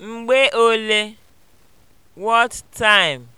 Mgbe ole (what time)